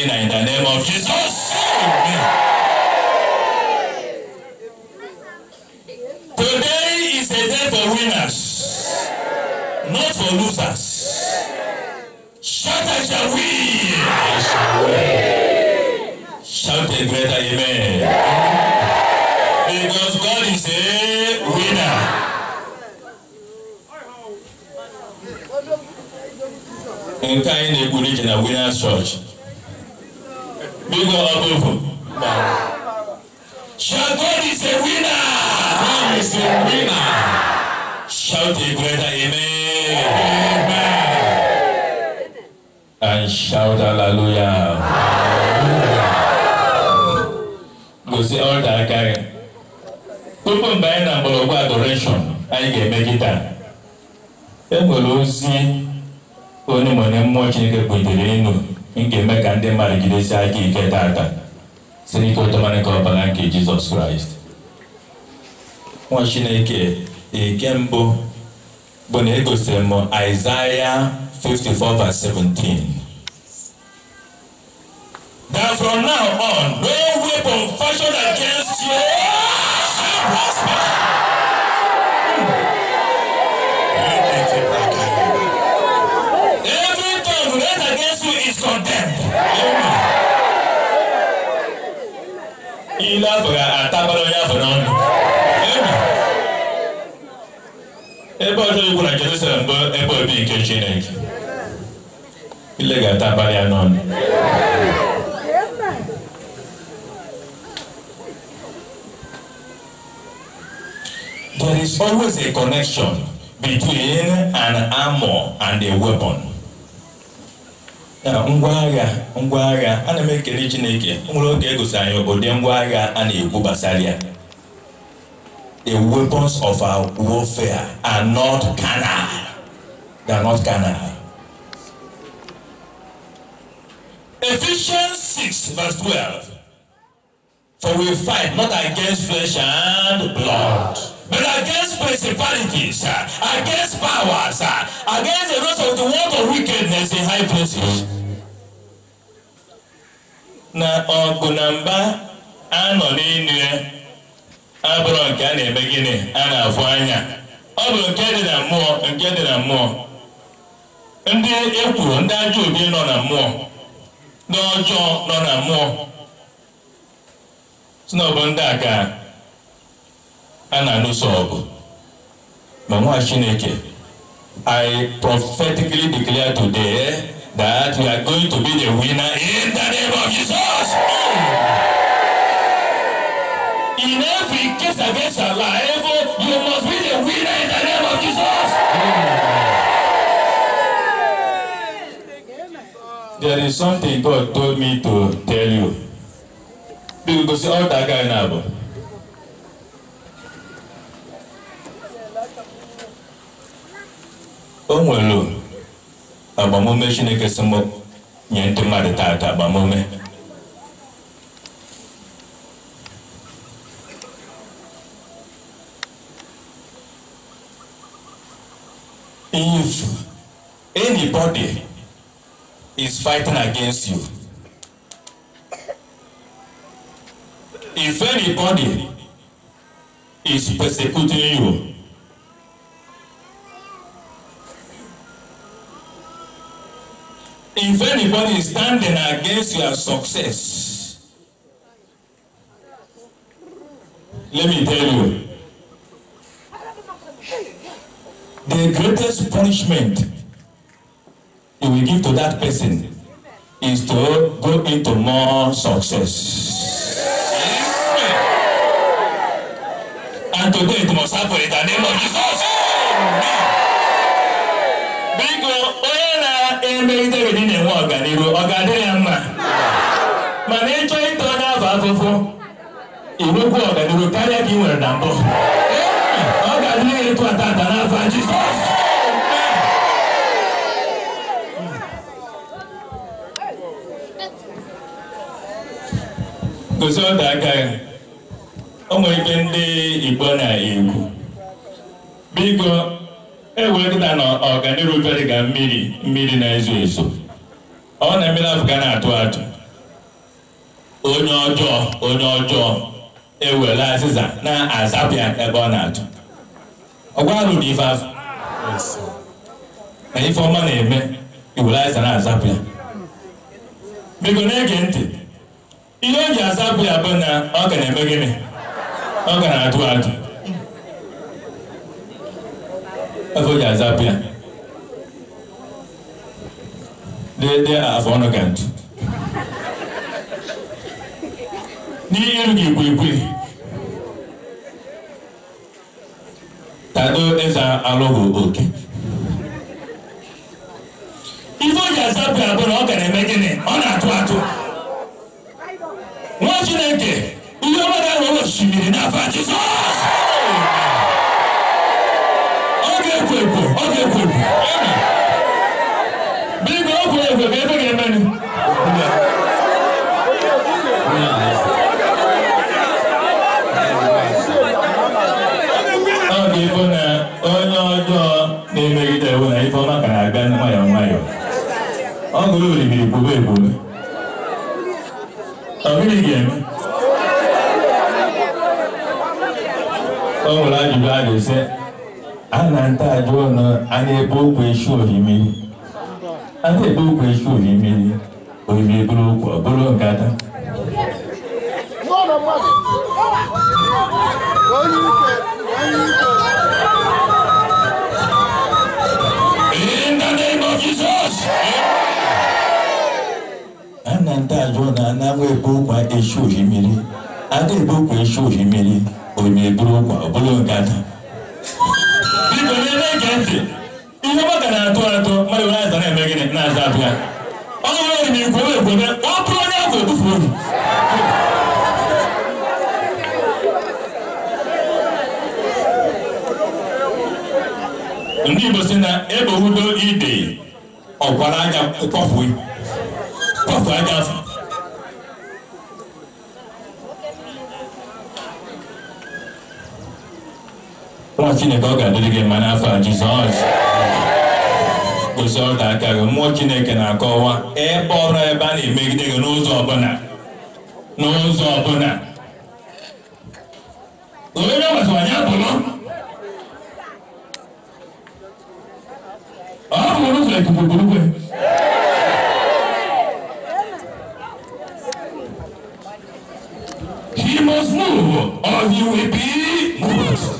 arena in the name of Jesus. Amen. Today is a day for winners, not for losers. Shout, I shall win. I shall win. Shout a greater amen. amen. Because God is a winner. nkan yi na-egburu ije na winners church Big up Abofo. Shall God is a winner. God is a winner. Shout a greater amen. Amen. And shout hallelujah. Go say all that guy. Gbogbo mgbe anyị na-agbọrọgwụ adoration anyị ga-eme kịta. E nwere ozi onye mmụọ Chineke butere enu nkemme ka ndị mmadụ jidesi aka ike taata si n'ike otomanike ọbara nke jizọs kraịst nwa chineke ike mbụ bụ na egosiri m Isaiah 54 verse that from now on no weapon fashioned against you shall prosper. Jésù is condemned. Ilé afọ̀gà àtàbọ̀dọ̀ yà fọ̀nà ọ̀nà. Ebe ọjọ́ ikwu na Jerusalem bụ ebe obi nke Chineke. Ile ga-atabalị ya n'ọnụ. There is always a connection between an armor and a weapon. ngwa ngwaagha ngwa agha m ekele chineke nwere oge egosi anyị obodo ngwa a na-ekwu gbasara ya the weapons of our warfare are not carnal they are not carnal Ephesians 6 verse 12 for we fight not against flesh and blood but against principalities, against powers, against the rest of the world of wickedness in high places. na ọgụ na mba a nọ n'elu ya abụrụ nke a na-eme gịnị a na-afụ anya ọ bụ nke dị na mmụọ nke dị na mmụọ ndị ekwuru ndị ajọ obi nọ na mmụọ ndị ọjọọ nọ na mmụọ bụ ndị a a na-alụso ọgụ ma nwa chineke i prophetically declare today that we are going to be the winner in the name of jesus in every case against our life you must be the winner in the name of jesus there is something god told me to tell you bí gbogbo sí ọ̀dà guy náà bọ̀. o nwere agbamume chineke si m nye ndị mmadụ taata agbamume if anybody is fighting against you if anybody is persecuting you If anybody is standing against your success, let me tell you, the greatest punishment you will give to that person is to go into more success. Yeah. And today it must happen in the name of Jesus. emerịta obodo na-enwe ọganihu ọ ga-adịrị ya mma mana ịchọ ịta onye afọ afụfụ inwekwu ọganihu karịa ka ị nwere na mbụ ọ ga-adịrị ya ịtụ atata n'afọ Jizọs gosi ọdọ aka ya o nwere ike ndị Igbo na-ekwu biko ewee kịta na ọganirubere ga mmiri mmiri na-ezo ezo ọ na mmiri afụga na-atụ atụ onye ọjọọ onye ọjọọ ewere azịza na-azapịa ebe ọ na-atụ ọgwarụ na ife afọ na ife ọma na-eme iwere azịza na-azapịa bụ na-ege ntị ihe o ji azapụ ya bụ na ọ ga na-eme gịnị ọ ga na-atụ atụ afọ ji azapụ ya afọ ọnụ ka ntụ n'iru gị kwilikwili tado eze alụghị oke ife o ji azapụ na eme ọ na-atụ atụ ọma ga osimiri olórí bí ìbò bẹ́ẹ̀ bò ní. àbílí gẹ̀ẹ́mí. ọ̀hún láti bá a lè sẹ́ ana ń tàjọ ọ̀nà ana ebe okwu esu ohimiri ana ebe okwu esu ohimiri ohimiri bụrụ In the name of Jesus! na ndị ajọ na anaghị ebe ụkwa eshi ohi mmiri aga ebe ụkwa eshi ohi mmiri onye buru ụkwa ọbụla ngada biko ntị ihe maka na-atụ atụ mmadụ were aza na-eme gịnị na-aza abịa ọ onye ekwebe ọ bụrụ onye afọ ebufu ohi ndị Igbo si na ebe udo ide ọkwara anya Papa Adafu. Nwa Chineke ọ ga-adịrị gị mma n'afọ Jizọs kwụsị ọdọ aka gị mmụọ Chineke na-akọwa ebe ọbụla ebe a na-emegide gị n'ụzọ ọbụla n'ụzọ ọbụla onye gbasara ya bụrụ ọ bụrụ ụzọ ikuku burukwe you must move or you will be moved.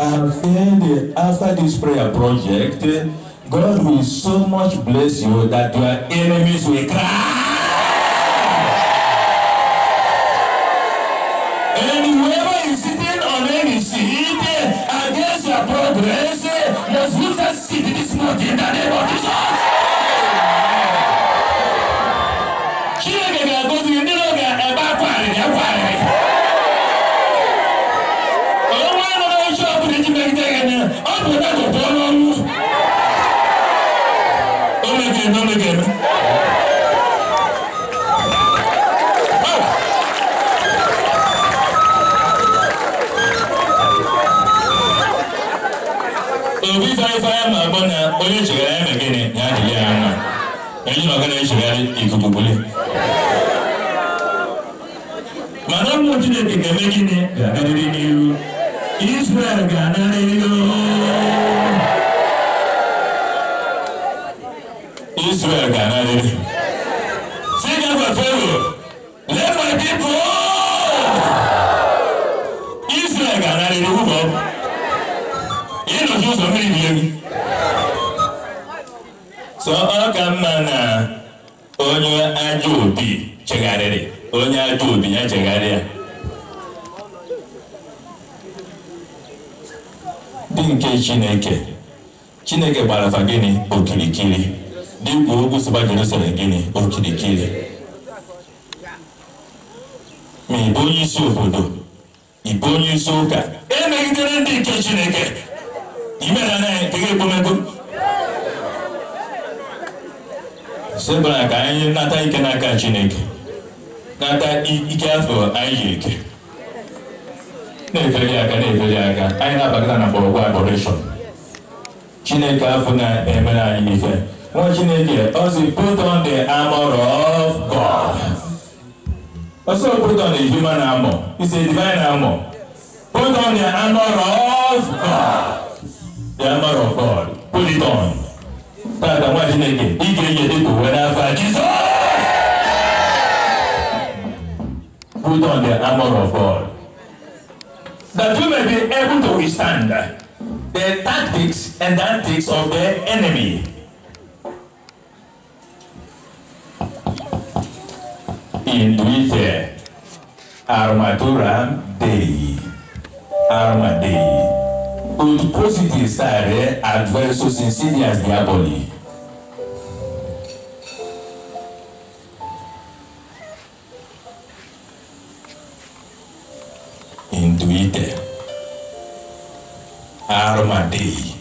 I feel after this prayer project, God will so much bless you that your enemies will cry. And whoever is sitting on any seat Against your progress, must lose a seat this morning in the name of yanzu magana ya shiga ya dubule madamu israel ga-anarịrị israel ga na onye ajọ obi chegharịrị onye ajọ obi ya chegharịa dị nke chineke chineke gbarafa gịnị okirikiri dịkwa ogwu sịba jerusalem gịnị okirikiri ma ịbụ onye isi obodo ịbụ onye isi ụka emegidere ndị nke chineke imere nke sibara ka anyị nata ike n'aka chineke nata ike afọ anyị yi ike na-efeli aka na-efeli aka anyị na-abakata na mgbọrọgwụ agbọreshọn chineke afọ na-emere anyị ife nwa chineke ọ si put on the armor of god ọsọ put on the human armor is a divine armor put on the armor of god the armor of god put it on aga nwa chineke ị ga-enye dị ka uwe n'afọ put on the armor of God that you may be able to withstand the tactics and antics of the enemy. In Induite armatura dei, arma dei. Untuchosities are adverso sincerely as their body. Induite. Armadei.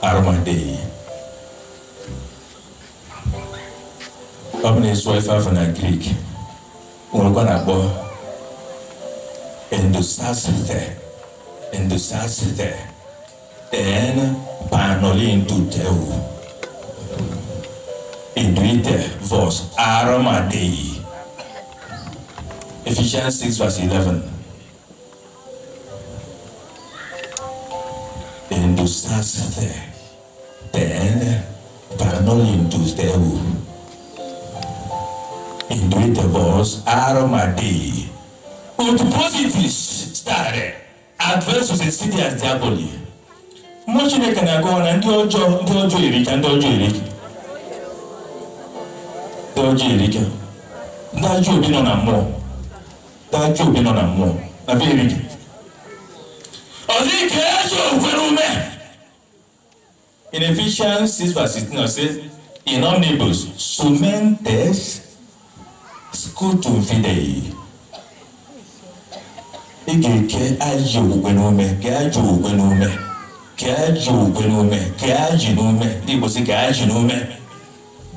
Armadei. Up in his wife half in a Greek. We're gonna go. Endosasite. In hindustan tɛ ɛn panɔlen tu tɛ o idui tɛ vɔs aramaden ye ephesians six verse eleven hindustan tɛ ɛn panɔlen tu tɛ o idui tɛ vɔs aramaden ye with positives started advance succeed as diaboli mmụọ chineke na-agọwa na ndị ọjọọ ndị ọjọọ erika ndị ọjọọ erika ndị ọjọọ erika ndị ajọ obi nọ na mmụọ ndị ajọ obi nọ na mmụọ na be erika ọ dị ka ezi okwere ume in Ephesians 6 verse 16 ọ sị in omnibus sumentes scutum fidei ị ga-eke ajọ ogwe n'ume ka ajọ ogwe n'ume ka ajọ ogwe n'ume ka ajị n'ume ndị Igbo si ka ajị n'ume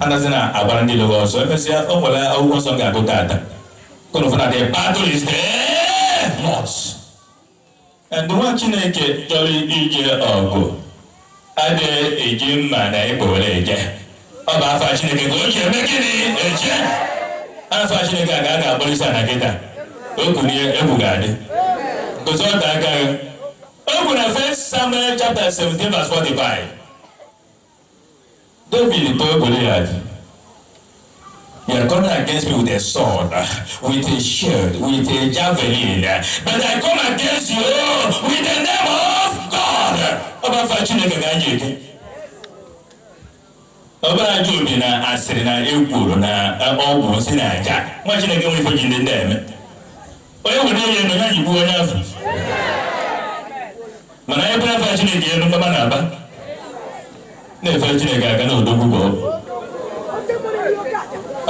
anazi na agwara ndị lụrụ ọsọ emesịa o nwere akwụkwọ nsọ ga-agụ tata kọnfụna dị: battle is there not and nwa Chineke chọrọ ije ọgụ adịghị eji mma na ịkpọ were eje ọ bụ afọ Chineke ka o ji eme gịnị eje afọ Chineke a ga-aga agbalịsa na kịta okunye egwu ga-adị kò sọ ẹ̀ka rẹ̀ open the first Samuel chapter seventeen verse forty-five David tó Goliath. You are coming against me with a sword, with a shield, with a javelin, but I come against you with the name of God. Ọba fa Chineke ga-anyị eke. Ọba ajụ obi na asịrị na ekworo na eh, ọgwụ si na aja. Nwa Chineke nwere ife ji ndị ndị eme. onye nwere ihe ndo ya yigbuo onye afọ mana anyị bụrụ afọ chineke elu mgbaba na-aba na-efe chineke aga na odogwu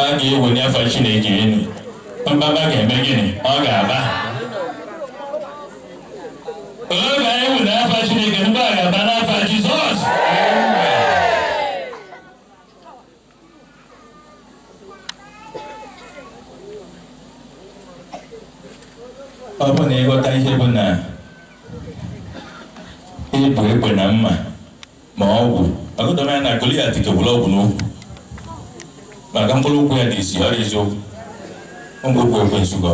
a ga-ewenye afọ chineke elu mgbaba ga-eme gịnị ọ ga-aba oge anyị were afọ chineke mgbe a ga-aba na ọ bụ na ịghọta ihe bụ na ịbụ e egbe na mma ma ọgwụ agụdọmanya na Goliat kewuru ọgwụ n'okwu maka mkpụrụ ụkwụ ya dị isi ọrịa eziokwu ngwụkwụ ekwensu gị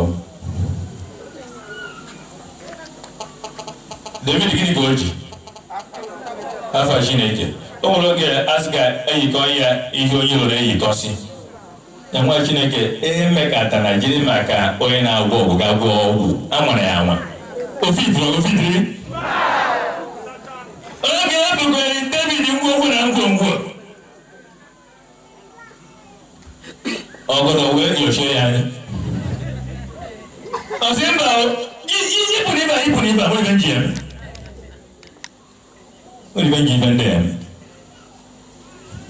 David gịnị ka o ji afa Chineke o nwere oge asị ga eyikọ ya ihe onye lụrụ eyikọsi na nwa chineke ihe mmekata na jiri maka onye na-agwọ ọgwụ ga gwọ ọgwụ a ya anwa ofidiri oge e bugoro david ngwongwo na ngwongwo ọgọdọ wee nyochie ya anya ọsị mba ipụrụ ibe ipụrụ ibe abụrụ ibe nji eme ibe nji ibe ndị eme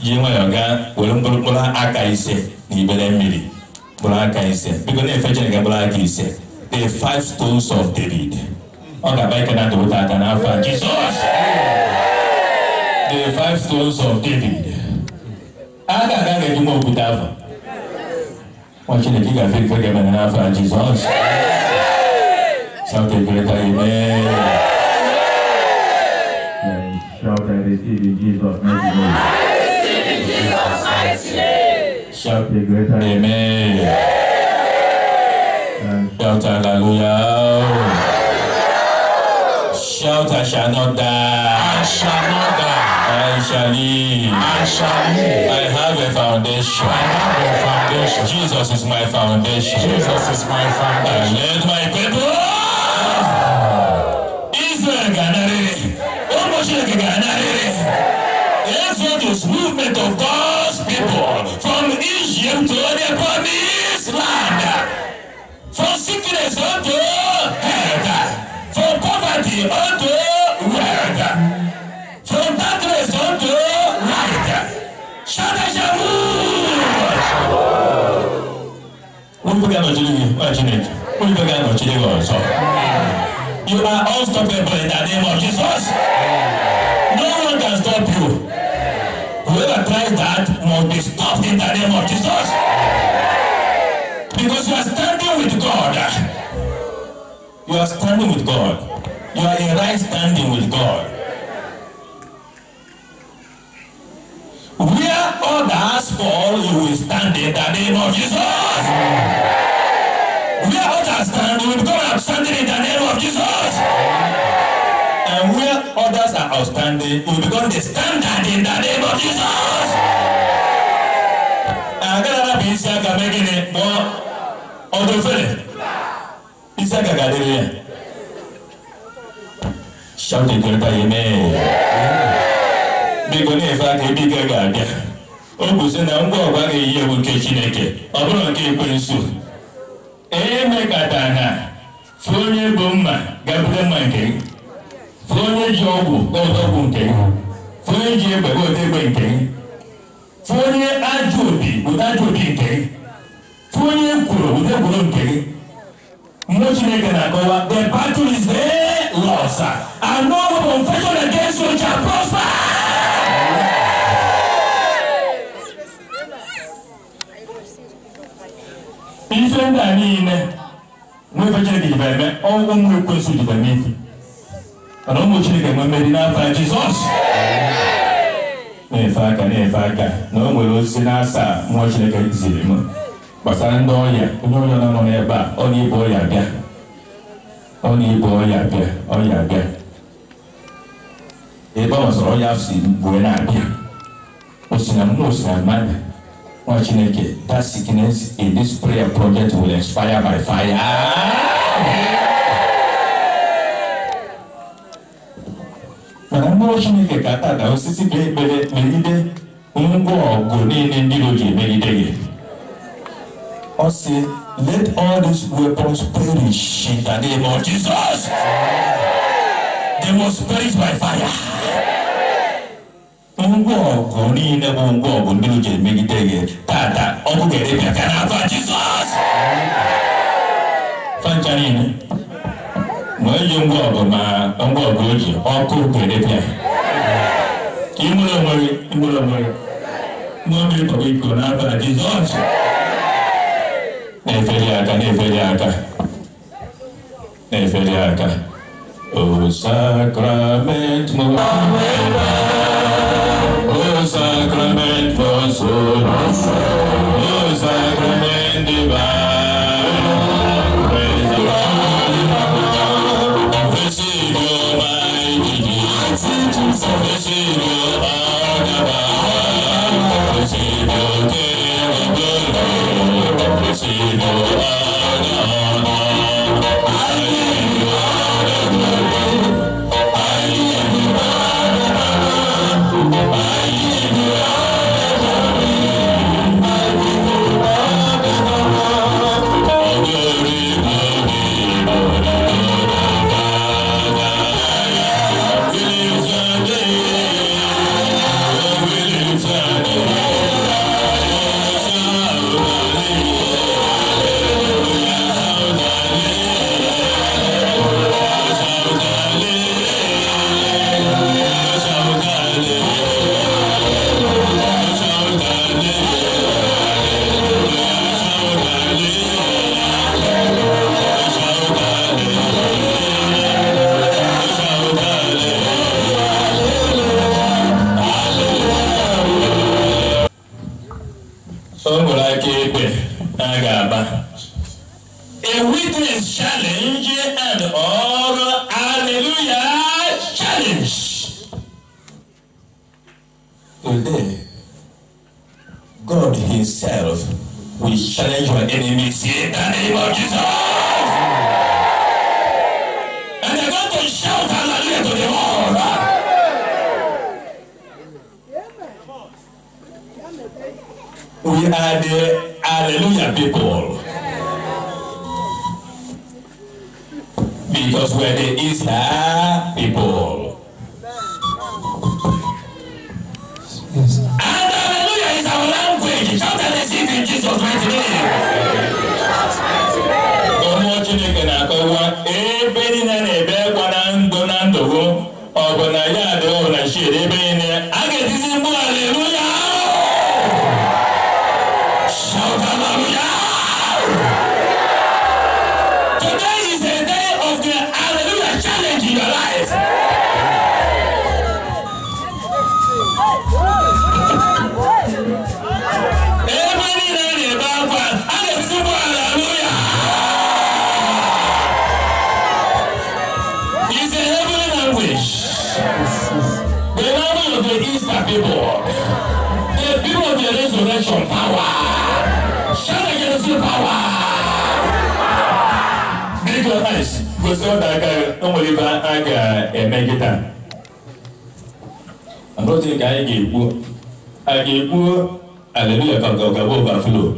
ji nwayọọ gaa were mkpụrụ aka ise ni bɛlɛ miiri bɔlɔn ka biko ne ye fɛn cɛnni kɛ bɔlɔn the five stones of david ɔ ka bɛɛ kɛnɛ dugu ta ka n'a fa jesus the five stones of david a ka kan kɛ jumɛn kun t'a fa wọn ti ne k'i ka fɛn fɛn kɛ mɛ n'a fa jesus sanfɛ bɛɛ ta ye Shout at the Jesus. Shout the greater Amen. Shout hallelujah. Shout I shall not die. I shall not die. I shall live. I shall live. I have a foundation. I have a foundation. Jesus is my foundation. Jesus is my foundation. I led my people. Israel Ganare. Almost like Ganare. That's what this movement of God. people from Egypt to the promised land, from sickness unto health, from poverty unto wealth, from darkness unto light. Shout out Shamu! Olùgbẹ́gà you yìí, wọ́n ti What Olùgbẹ́gà nọ̀chílẹ̀ yìí wọ́n sọ. You are unstoppable in the name of Jesus. No one can stop you whoever tries that must be stopped in the name of Jesus. Because you are standing with God. You are standing with God. You are in right standing with God. Where others fall, you will stand in the name of Jesus. Where others stand, you will go and stand in the name of Jesus and where others are outstanding will become the standard in the name of Jesus. agadara bụ isi aka mee gịnị kpọọ ọdụ ofere isi aka ga-adịrị ya shout ekwereta ya mee biko na-efe aka ebe ike ga-abịa o kwụsị na ngwa ọgwa ga-eyi ewu nke chineke ọ bụrụ nke ekwensu emekatana fụ onye bụ mma gabute mma nke gị fúnẹ́jì ọgwụ ọtọ ọgwụ nke ya fúnẹ́jì egbe ọtọ egbe nke ya fúnẹ́ ajọ obi ụdọ ajọ obi nke ya fúnẹ́ ekworo ụdọ ekworo nke ya mmụọ chineke na-akọwa the battle is there lost and no weapon fashioned against you shall prosper. ife ndị a niile nwa ife chineke jibe ọnwụ nwa ekwensu jibe n'efi mana ụmụ chineke nwe mmeri n'afa jizọs na-efe aka na-efe aka na o nwere osisi na-asa mmụọ chineke ziri m gbasara ndị ọrịa onye ọrịa nọ n'ebe a ọ na-ebu ọrịa bịa ọ na-ebu ọrịa bịa ọrịa bịa ebe ọ masịrị ọrịa si mgbe na-abịa osina m na osina mmadụ nwa chineke that sickness in this prayer project will expire by fire. mụrụ chineke ka ata dao site ka ekpere megide ngwa ọgụ niile ndị iro ji emegide gị ọ sị let all these weapons perish in the name of jesus they must perish by fire ngwa ọgụ niile bụ ngwa ọgụ ndị iro ji emegide gị tata ọgụ ga-edebịa ka n'afọ jizọs fancha niile ma eji o sacrament, o sacrament, o divine Oh, name of Jesus. And they're going to shout hallelujah to the Lord. We are the hallelujah people. Because we're the Easter people. Yes. And hallelujah is our language. Shout and receive in Jesus' mighty name. kwesịrị na aka enwere ibe a ga-eme nkịta arụzi ka anyị ga-ekwu a ga-ekwu aleluya ka ọgaba overflow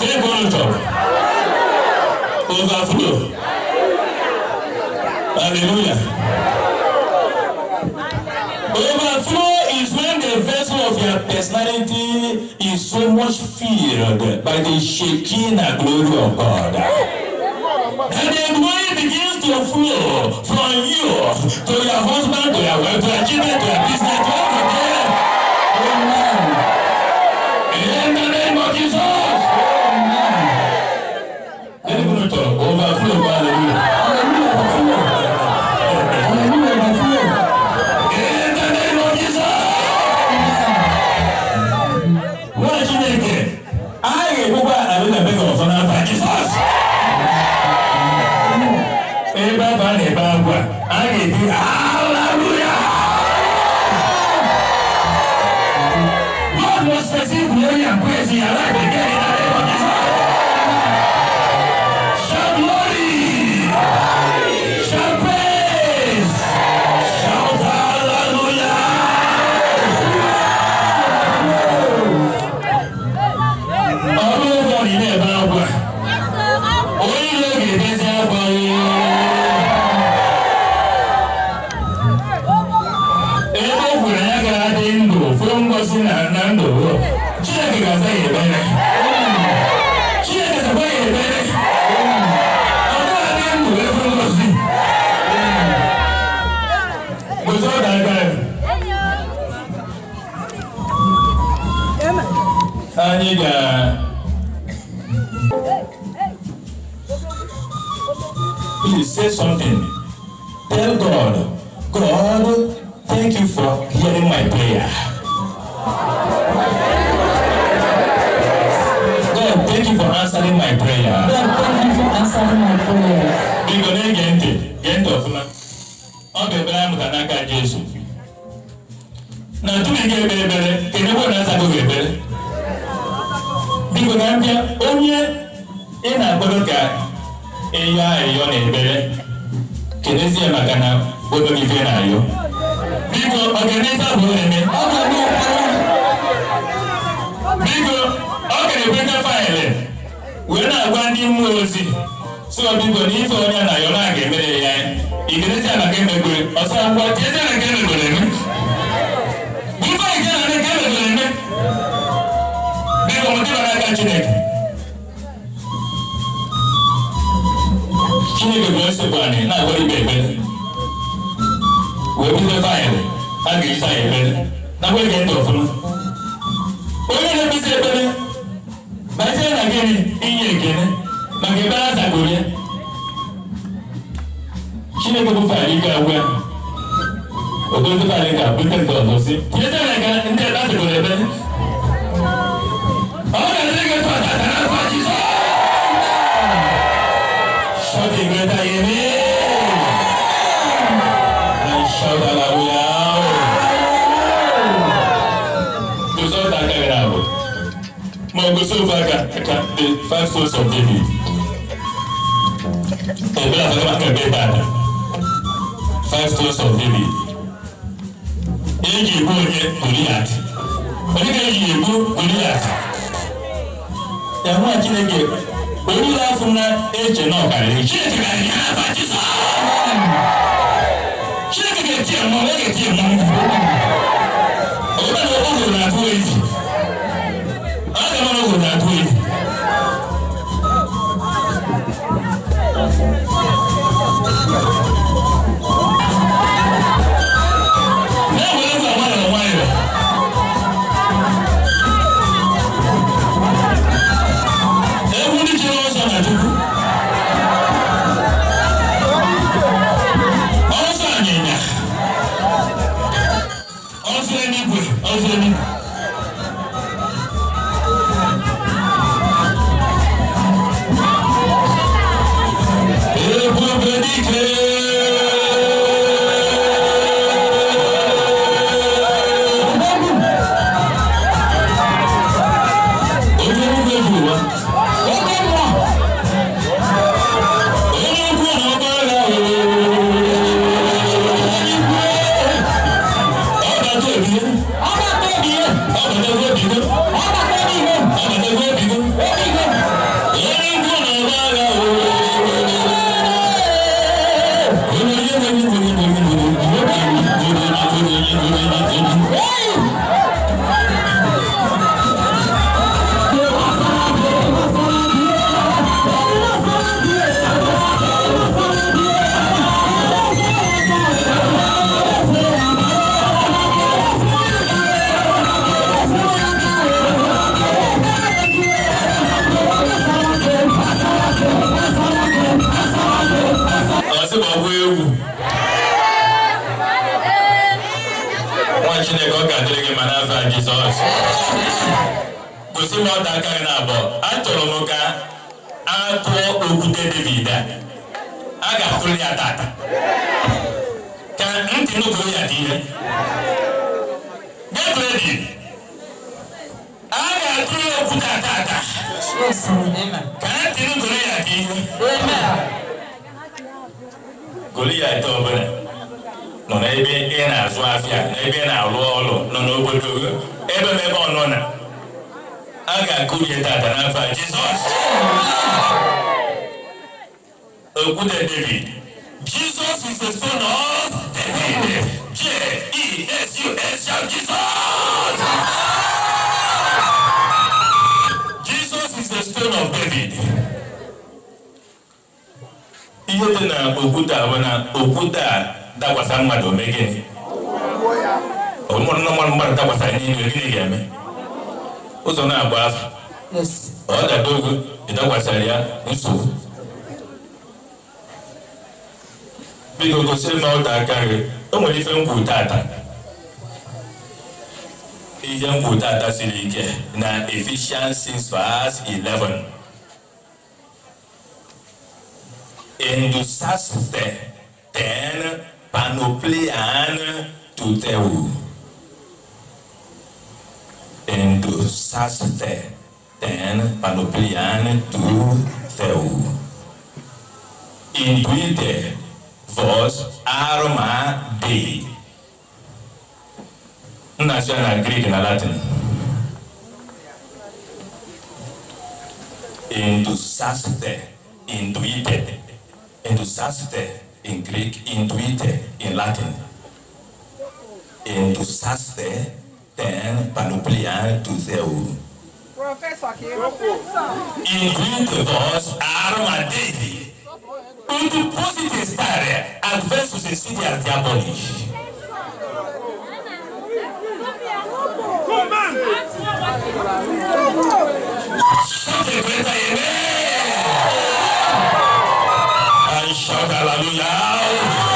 tebụl top overflow aleluya overflow is when the vessel of your personality is so much filled by the Shekinah glory of God. And the money begins to flow from you to your husband, to your wife, to your children, to your business, to everything. amfani please say something tell god god thank you for hearing my prayer god thank you for answering my prayer god thank you for answering my prayer igbo na-ege ntị gee ntị ọfụma ọ ga-ebere amụta n'aka jesu na tupu ị ga-ekpere ekpere kedụ ebe na-asago ga-ekpere na onye ị na-akpọrọ ka ịyọ ayọ na ebere kenezie maka na odo ife na-ayọ biko ọganife abụ eme biko ọ ga-ekweta faịlị wee na-agwa ndị mmụọ ozi so biko na ife onye na-ayọ na-aga emere ya ikenezi maka emegbe ọsọ ngwa tiezie na nke emegbereme na Chineke Chineke bụ esekwa anyị na-agwara ibe ekpere wee bute faịlụ a ga-eji anyị ekpere nakwa ege onye na-ekpesi ekpere na gịnị inye maka ekpere ya Chineke bụ faịlụ ike ya faịlụ ga nke ọzọ si tinyezie na ndị over again the five sons of David. Ẹ̀gbẹ́ àfẹ́fẹ́ akẹ́gbẹ́ Ìbàdàn five sons of David. Èyí ègbó yẹ Goliath. Oníkẹ́ èyí ègbó Goliath. Ìyàwó àjínẹ́gẹ̀ onílà fúnra ẹ̀jẹ̀ náà kàrí. Ṣé ètò kàrí yàrá àbájí sọ? Ṣé kẹ̀kẹ́ tiẹ̀ mọ́ ẹ̀kẹ́ tiẹ̀ mọ́? Ọ̀gbọ́n ni ọkọ̀ òṣèlú àti wọ́n èyí. Solomon Christ is the stone of David. J E S U S shout Jesus. Jesus is the stone of David. Ihe dị na okwute a na okwute a dakwasa mmadụ ome gịnị? Ọmụmụ mmadụ mmadụ dakwasa n'ime gịnị ga-eme? Ụzọ na-agba afọ. Ọ dada ogo ịdakwasara ya nsogbu. biko gosi na ọ ta aka gị o nwere ife nkwu tata ihe nkwu tata siri ike na Ephesians 6 verse 11 endusaste ten panoplian tuteu endusaste ten panoplian tuteu induite verse arma dei ina so na greek na latin indusaste induite indusaste in greek induite in latin indusaste ten panoplia tu theu Professor, que Induite vos arma dei il depositi his tire and fails to succeed as diabolic. Shout a greater amen and shout hallelujah.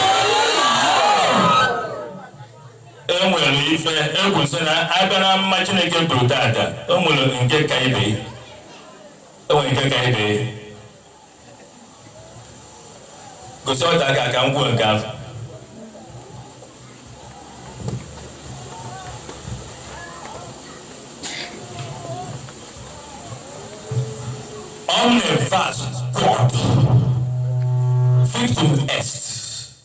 E nwere ife egwu sị na abịa na mma Chineke buru taata, o nwere nke ka ibe, o nwere nke ka ibe gosɔɔta ka kan kɔn kan. on the verse God fifth est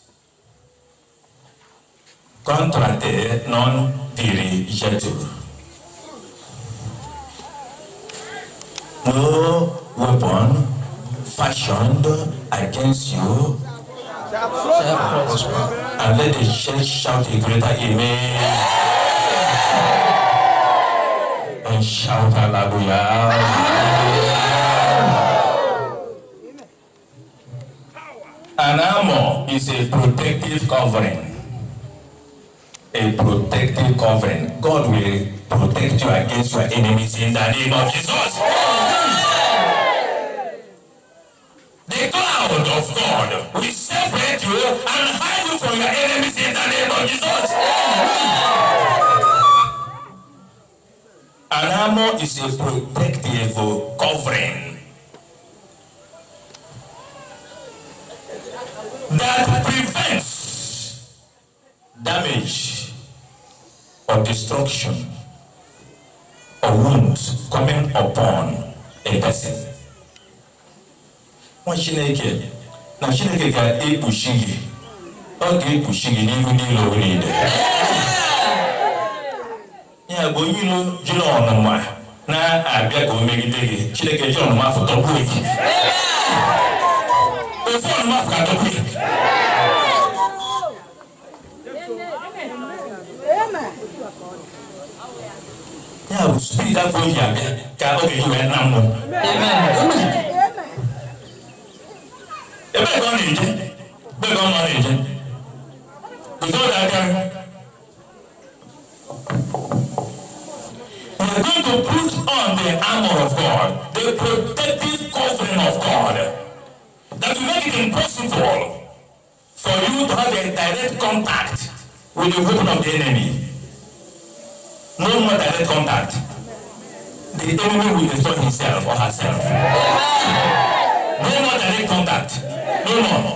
contrate non dirigetur no weapon fashioned against you And let the church shout a greater amen. And shout hallelujah. An armor is a protective covering. A protective covering. God will protect you against your enemies in the name of Jesus. child of God. We separate you and hide you from your enemies in the name of Jesus. An armor is a protective covering that prevents damage or destruction or wounds coming upon a person. nwa chineke na chineke ga-ekpuchi gị ọ ga-ekpuchi gị n'ihu niile owe niile ya bụ onye ilo jiri ọnụma na-abịa ka o megide gị chineke ji ọnụma afọ tọpụ gị ofu ọnụma afọ ka tọpụ gị ya bụ spid afọ oji abịa ka ọ ga wee na mmụọ ebe ka ọ na-eje ebe ka ọ ma na-eje guzoro aka We are going to put on the armor of God, the protective covering of God, that will make it impossible for you to have a direct contact with the weapon of the enemy. No more direct contact. The enemy will destroy himself or herself. No more direct contact dọ̀nà ṣàtúnwó.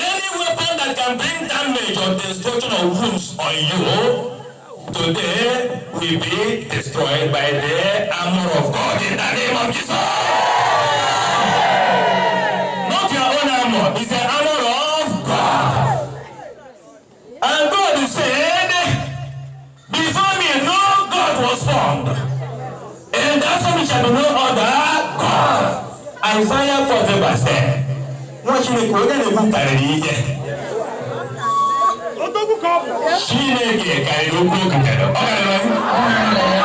Any weapon that can bring damage or destruction or wounds on you today will be destroyed by the armor of God in the name of Jesus. Not your own armor armor the of God. God god And said, before me no was formed shall be no other God. Isaiah 40 verse 10. Wọ́n Chineke onye na-ekwu karịrị ihe. Chineke karịrị okwu oketere. Ọ karịrị okwu?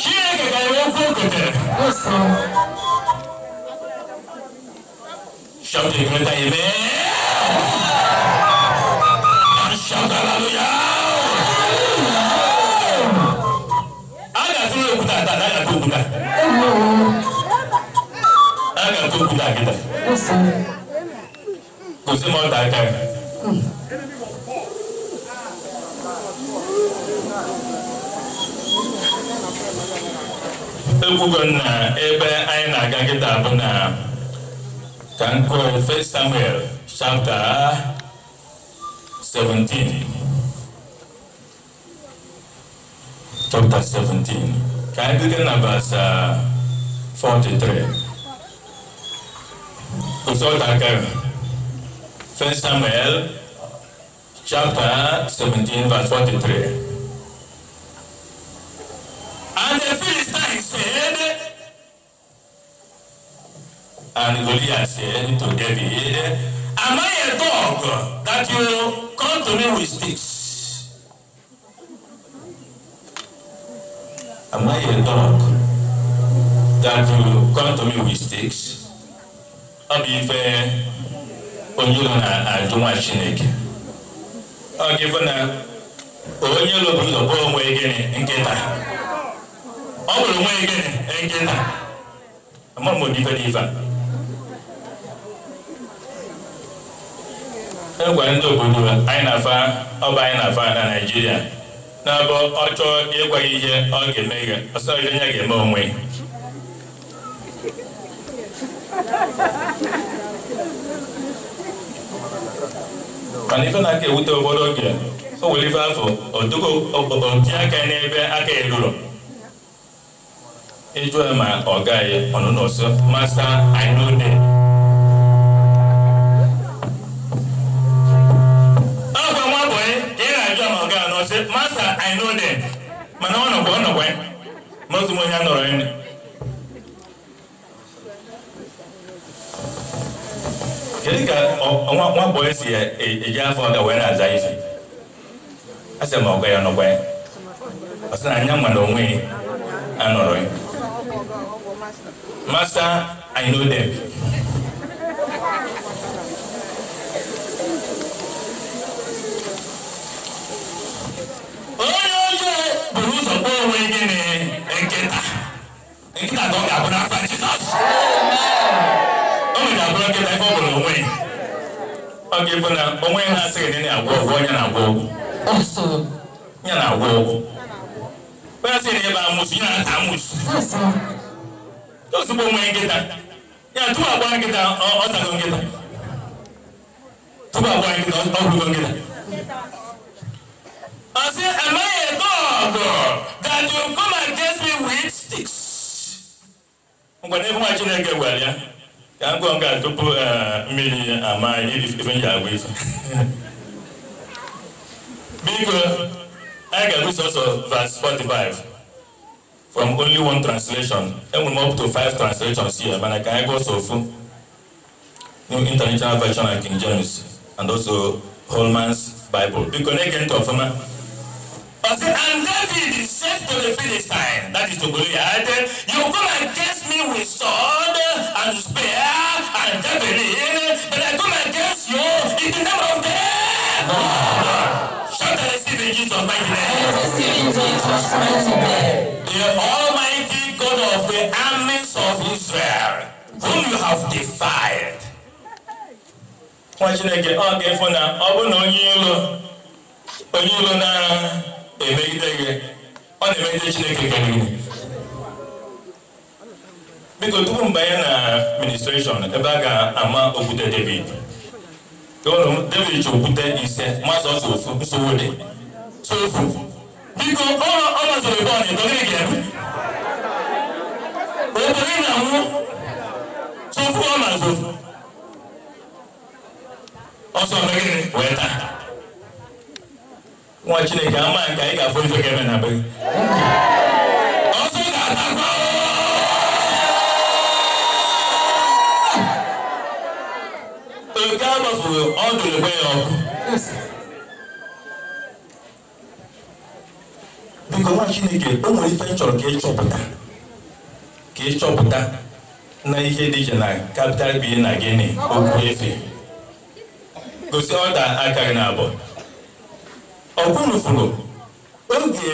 Chineke karịrị okwu oketere. Shout a greater amen. And shout hallelujah. kita. Ana to kula kita. Kò sí mọ́ ta ká. Ekwugo na ebe anyị na-aga kita bụ na ka m kọọ 1 Samuel chapter 17 chapter 17 Can I begin at verse uh, 43? Consult again. first Samuel chapter 17, verse 43. And the Philistine said, and Goliath said to David, Am I a dog that you come to me with sticks? Am I a dog that you come to me with sticks? ọ bụ ife onye ụlọ na-ajụ nwa Chineke ọ ga-efe na onye ụlọ bụ ụzọ kpọọ onwe gịnị nkịta ọ bụrụ onwe gịnị nkịta ama m odife dị ife a egwa ndị obodo anyị na-afa ọba anyị na-afa na Naịjirịa na mbụ ọ chọọ ịgwa gị ihe ọ ga-eme ihe ọsọghị onye ga-eme onwe mana ife na-aka ewute ụfọdụ oge o nwere ife afọ otuko otinye aka n'ebe aka eruru ịjụ ma ọ gaghị ọnụ n'ọsọ masa anyụde ọkwa nwa bụ ka ị na-ajụ ma ga anọ sị masta i mana ọ nọkwa ọ nọkwa ma ozugbo onye a nọrọ ya kedu ka nwa si eji e, e afọ ga wee na-aza ife asị ma ọgọ ya nọkwa ya ọ sị na anya onwe anọrọ ya fana onwe ya na-asị gị na agwọ ọgwụ onye na-agwọ ọgwụ ya na-agwọ ọgwụ onye asị na ebe amụsụ ya na-ata amụsụ ozugbo onwe nkịta ya tupu agwa nkịta ọtago nkịta tupu agwa nkịta ọgwụgo nkịta I say, am I a that you come and test me with sticks? Ngwa na-efu nwa Chineke gwara ya yàgò nga tupu mmiri eh, eh, ama ife m ji agwa ife biko anyị ga-agụ sọsọ verse 45 from only one translation enwere m up to five translations here mana ka anyị gụọ sọ ofu new international version and king james and also holman's bible biko na-ege ntị ọfụma Okay, and David said to the Philistine, that is to Goliath, You come against me with sword and spear and javelin, but I come against you in the name of them. Shout and receive in Jesus' mighty name. The Almighty God of the armies of Israel, whom you have defied. Nwa Chineke, ọ ga-efu na ọ bụ na onye ilo, onye ilo na emegide gị ọ na-emegide chineke kere gị biko tupu mbanye na ministreshọn ebe a ga-ama okwute david ụlọ david ji okwute ise mazụ ọzọ ofu nsogbu dị sofu biko ọ mazụrụ ebe ọ na-edogịrị gị ebe obodo ị na-anwụ sofu ọ azụ. ọsọ megịrị wee taa nwa chineke ama nke anyị ga-afụ ife ga eme na be gị ọsọ ga-atakwa oke agbafuru ọ dụrụkwa ya ọkụ biko nwa chineke o nwere ife chọrọ ka ịchọpụta ka ịchọpụta na ihe dị iche na capital bi na gịnị okwu efe gosi ọda aka gị na abụọ ọkwunufuru oge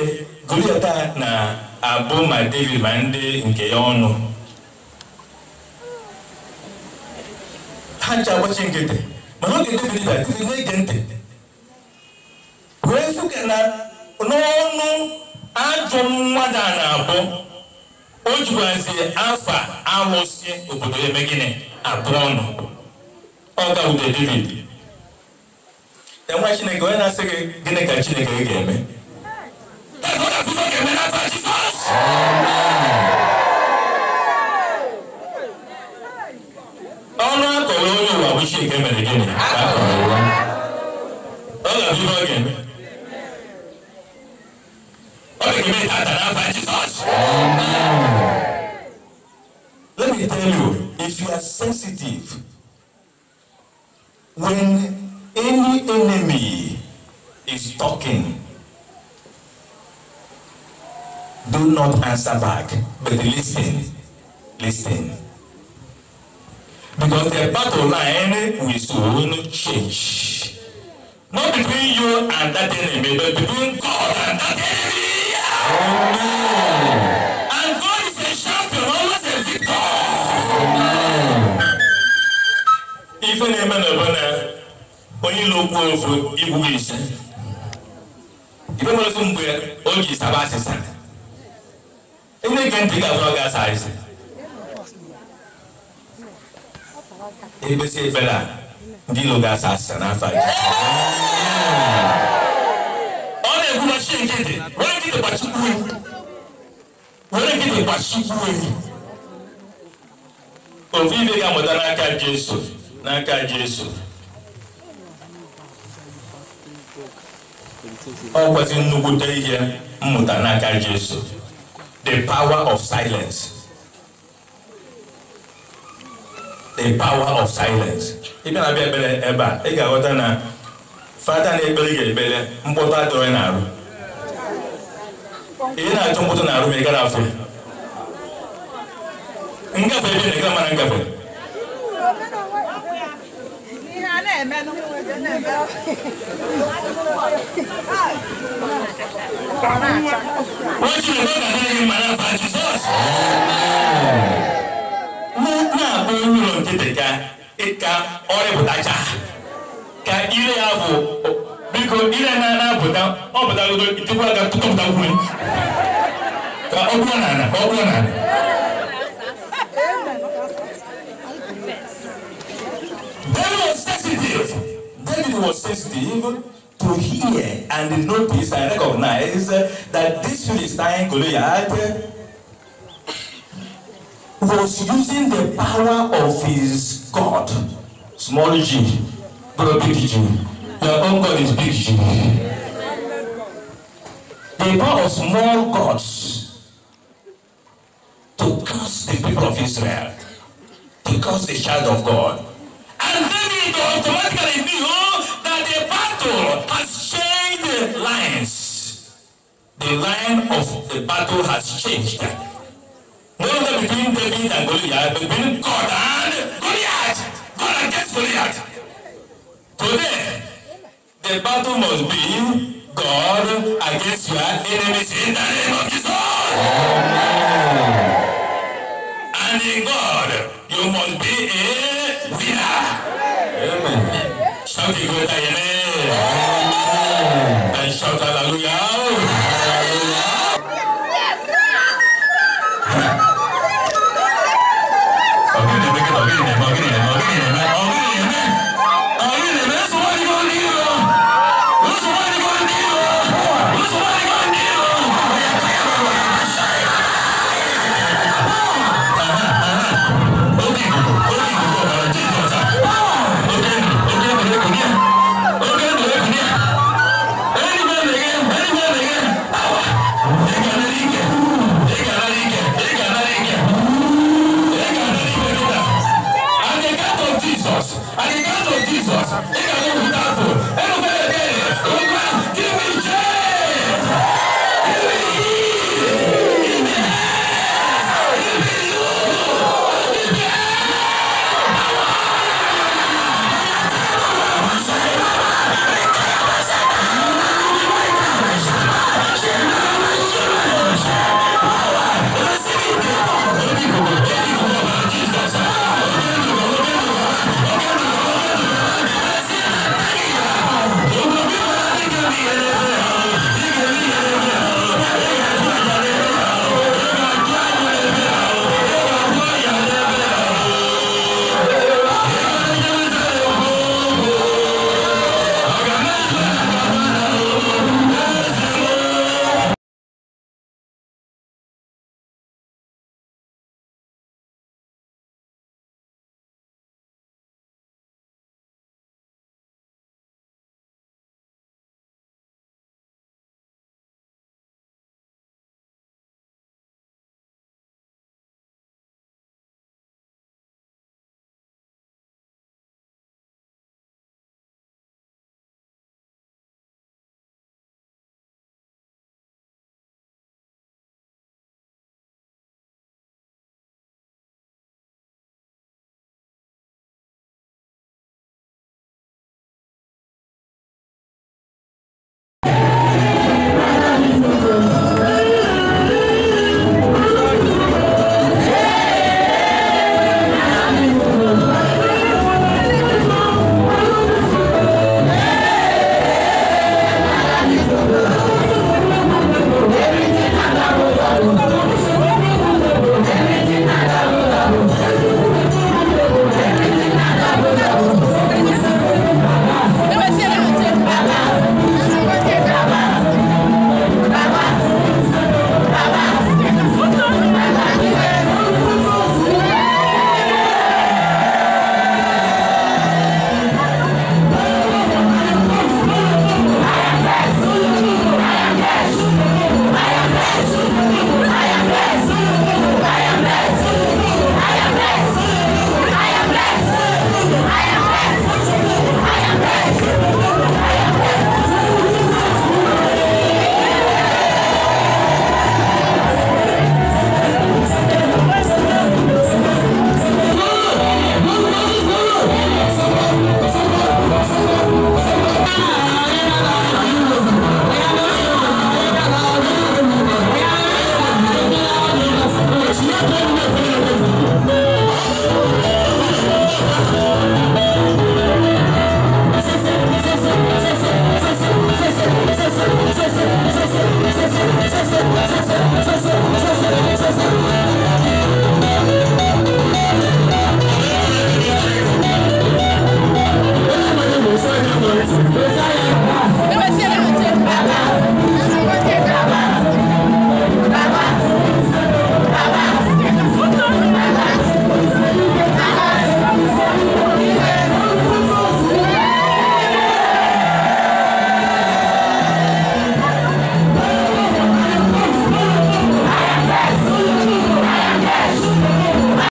goliata na-abụ ma david ma ndị nke ya ọnụ ha ncha agbachi nkịtị mana oge david bịa david na ntị wee fụka na n'ọnụ ajọ mmadụ a na-abụ o jikwazie afa alụsị obodo eme gịnị abụọ ọnụ ọ gawude david enwe chineke onye na-asị gị gịnị ka chineke gị ga-eme ọnụ akọrọ onye ụwa bụ chineke mere gịnị ka akọrọ ụwa ọ ga-abụ ihe ọ ga-eme Let me tell you, if you are sensitive, when enemy is talking, do not answer back, but listen, listen. Because the battle line will soon change. Not between you and that enemy, but between God and that enemy. Amen. And God is a champion, of a victor. Amen. Even Amen, Abana onye ilo okwu ofu igwu ise ibe mere otu mgbe o ji saba asịsa ndị nke ntị ga-afụrọ gị asa asị ebesi ebere a ndị ilo ga-asa asịsa n'afọ a ọ na-ekwu gbachi nkịtị were nkịtị gbachikwu ewu were nkịtị gbachikwu ewu ofu ibe ga-amụta n'aka Jesu n'aka Jesu ọ kwesị nnukwute ihe mmụta n'aka Jesu the power of silence the power of silence ị bịa na-abịa ekpere ebe a ị ga-aghọta na fata na-ekpere ga-ekpere mkpọtụ ị na-arụ ị na-achọ mkpọtụ na-arụ ma ị gara afọ ngafe ebe na ịga mara ngafe wọ́n ní ìwé ìwé ìwé màrà fàájì sọ́ọ̀sì. Muna ɓangaren kita ka ita ore butaja ka ire ya bu biko ire na na buta o buta gudu ita kuwa ka kuka buta kuwa ka o kuwa na na o kuwa na na. David was sensitive to hear and notice and recognize that this Philistine Goliath was using the power of his God, small g, but big G. Your own God is big G. The power of small gods to curse the people of Israel, to curse the child of God. And then it automatically knew that the battle has changed lines. The line of the battle has changed. No longer between David and Goliath, but between God and Goliath. God against Goliath. Today, the battle must be God against your enemies in the name of Jesus. Amen. And in God, you must be a Hallelujah. Amen. Shout to with Amen. And shout hallelujah.